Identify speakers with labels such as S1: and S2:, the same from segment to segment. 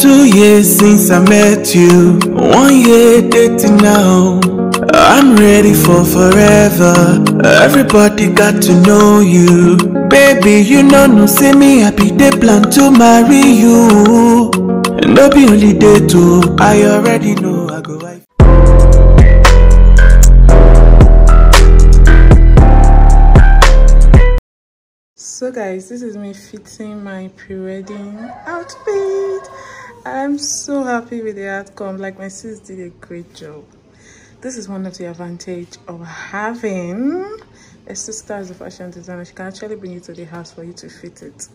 S1: Two years since I met you, one year dating now. I'm ready for forever. Everybody got to know you. Baby, you know, no, see me happy. They plan to marry you. And no be only day two. I already know I go. I
S2: so guys this is me fitting my pre-wedding outfit I'm so happy with the outcome. Like my sis did a great job. This is one of the advantage of having a sister as a fashion designer. She can actually bring it to the house for you to fit it.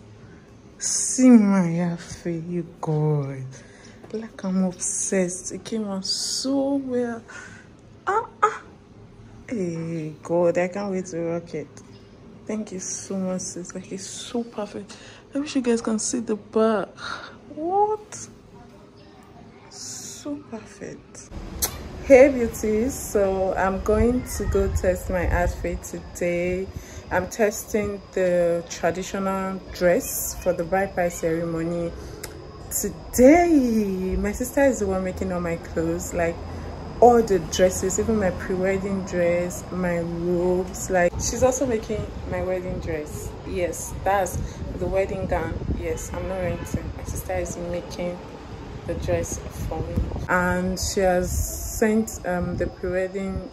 S2: See my outfit, you God. Like I'm obsessed. It came out so well. Ah, ah. Hey, God, I can't wait to rock it. Thank you so much, sis. Like, it's so perfect. I wish you guys can see the back so perfect hey beauties so i'm going to go test my outfit today i'm testing the traditional dress for the bride price ceremony today my sister is the one making all my clothes like all the dresses even my pre-wedding dress my robes like she's also making my wedding dress yes that's the wedding gown yes i'm not renting my sister is making the dress for me and she has sent um, the pre-wedding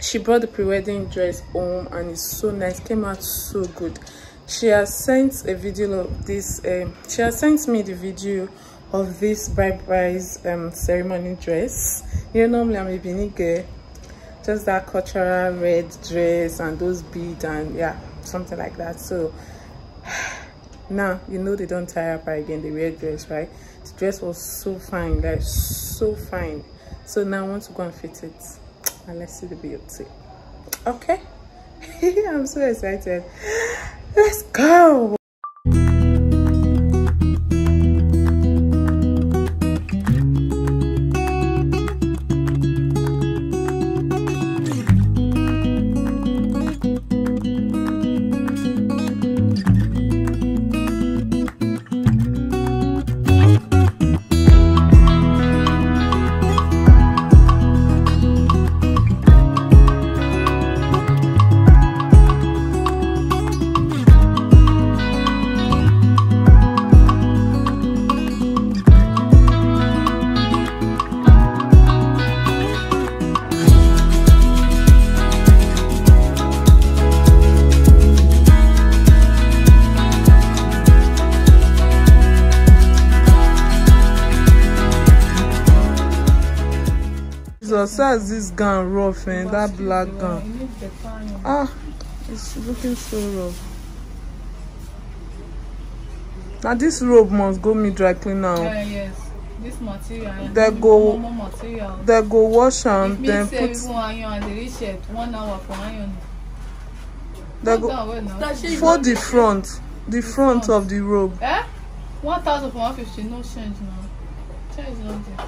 S2: she brought the pre-wedding dress home and it's so nice came out so good she has sent a video of this um, she has sent me the video of this bride price um, ceremony dress you know normally i'm a beanie girl just that cultural red dress and those beads and yeah something like that so now you know they don't tie up again they wear dress right the dress was so fine like so fine so now i want to go and fit it and let's see the beauty okay i'm so excited let's go Jesus, how this gown rough, eh? That black gown. Ah, it's looking so rough. Now this robe must go me dry clean now. Yeah, yes. This material. They go, material. they go wash and it then put. iron and the shirt, one hour for iron. They go for the front, the, the front, front of the robe. Eh? One thousand for one fifty, no change now. Change not there.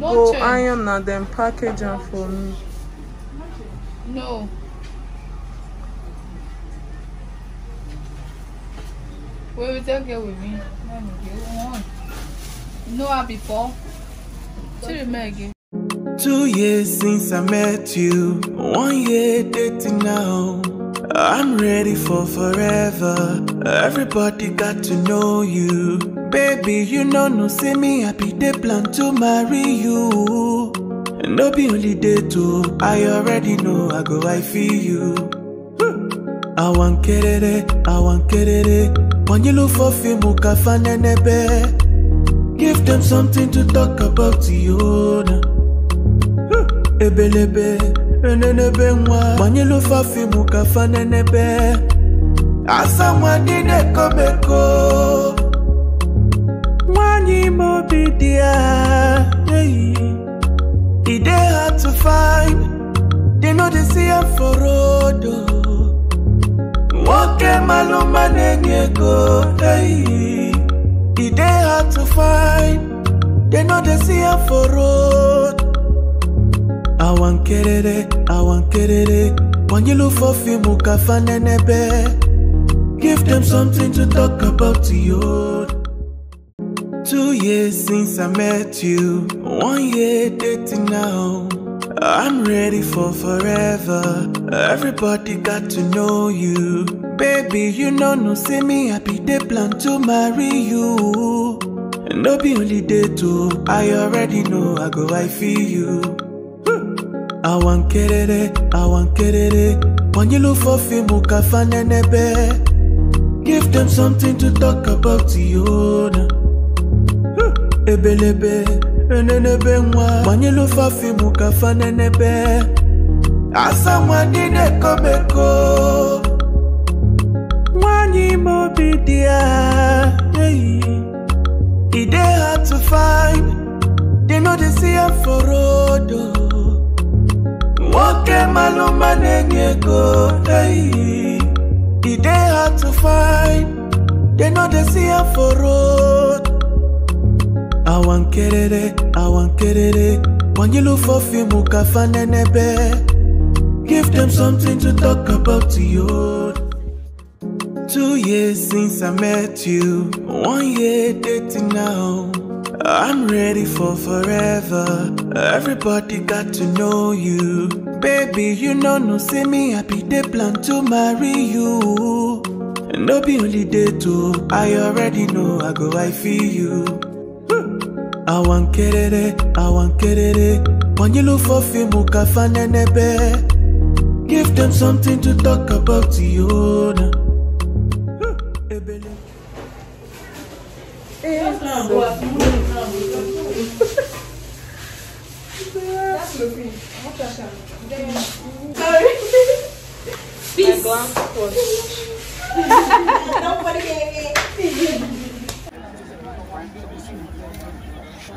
S2: go change. iron and then package am for me no wey we take get with me no i before she remain again
S1: Two years since I met you, one year dating now. I'm ready for forever. Everybody got to know you. Baby, you know no say me I be the plan to marry you. And No be only day two, I already know I go I feel you. Hmm. I want kerere, I want kerere. When you look for fame, ukafanenebe. Give them something to talk about you hmm. Ebelebe, enenebe nwa. When you look for fame, ukafanenebe. As someone did a come they hard to find. They know they see for road. Oh. Walk a maluma go. Hey. they hard to find. They know they see i for road. I want kerere, I want When you look for him, you can find Give them something to talk about to you years since I met you, one year dating now. I'm ready for forever. Everybody got to know you. Baby, you know, no, see me happy. They plan to marry you. And no be only day two. I already know I go, I feel you. I want get it, I want get it. When you look for film, you can find Give them something to talk about, to you ebelebe enenebe nwa gbanyelu ofe afọ ka fa asa nwa na-ekomeko nwanyị ime obi dị ya eyi e dey to find they no ya for road nwoke oh. malụma na-enye ego eyi e dey to find they no dey see ya for road I want kerere, I want kerere. When you look for film, ukafanenebe. Give them something to talk about to you. Two years since I met you, one year dating now. I'm ready for forever. Everybody got to know you. Baby, you know, no, see me happy. They plan to marry you. No be only day too. I already know I go, I feel you. awankerere awankerere Nene be give them something to talk about yona. Hmm, eh, Peace. Don't put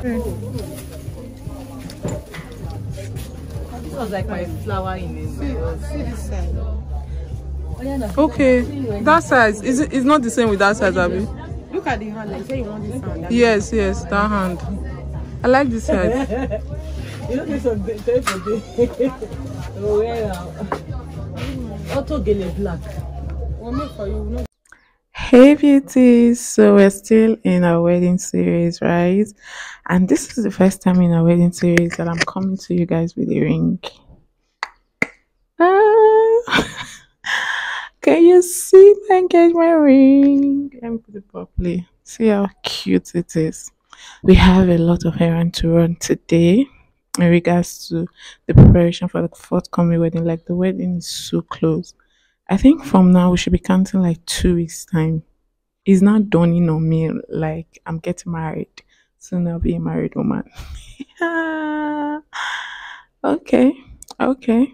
S1: This was like my flower in it.
S2: Oh, okay, that size is it's not the same with that size, Abby. Look at the hand. I say
S1: you want this hand. Yes, yes, that hand.
S2: I like this hand.
S1: you know this one day for day. Oh well. Auto gele
S2: black. One for you. Hey beauties! So we're still in our wedding series, right? And this is the first time in our wedding series that I'm coming to you guys with a ring. Ah. Can you see my engagement ring? Let me put it properly. See how cute it is. We have a lot of errand to run today in regards to the preparation for the forthcoming wedding. Like the wedding is so close. I think from now we should be counting like two weeks time it's not dawning on me like I'm getting married. Soon I'll be a married woman. okay, okay.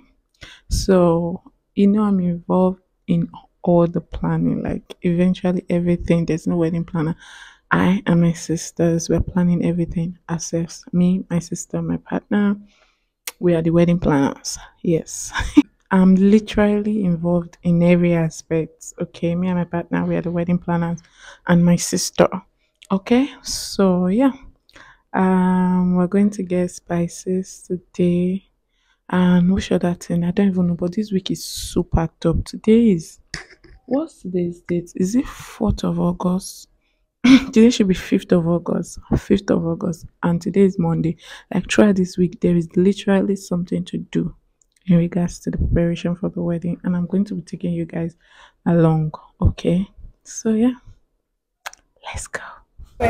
S2: So, you know, I'm involved in all the planning, like eventually everything. There's no wedding planner. I and my sisters, we're planning everything ourselves. Me, my sister, my partner, we are the wedding planners. Yes. I'm literally involved in every aspect. Okay, me and my partner, we are the wedding planners, and my sister. Okay, so yeah, um, we're going to get spices today, and we should that thing? I don't even know, but this week is super top. Today is what's today's date? Is it fourth of August? today should be 5th of August, 5th of August, and today is Monday. Like, throughout this week, there is literally something to do in regards to the preparation for the wedding and i'm going to be taking you guys along okay so yeah let's go I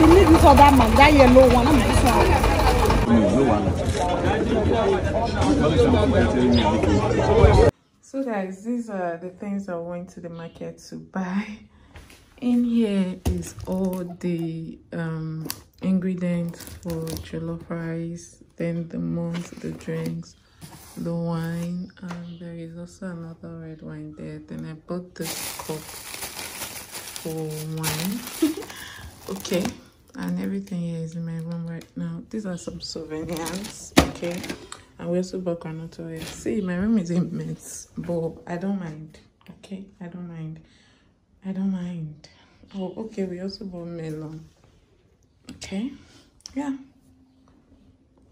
S2: didn't need this other man, that yellow one, I'm this one. So guys, these are the things I went to the market to buy in here is all the um, ingredients for jollof rice then the mugs the drinks the wine and there is also another red wine there then i bought this cup for wine okay and everything here is in my room right now these are some souvenirs okay and we also bought granola oil see my room is immense but i don't mind okay i don't mind I don't mind. Oh, okay, we also bought melon. Okay, yeah.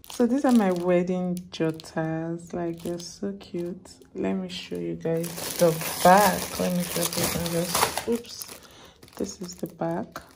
S1: So these are my
S2: wedding jotters. Like, they're so cute. Let me show you guys the back. Let me drop it Oops. This is the back.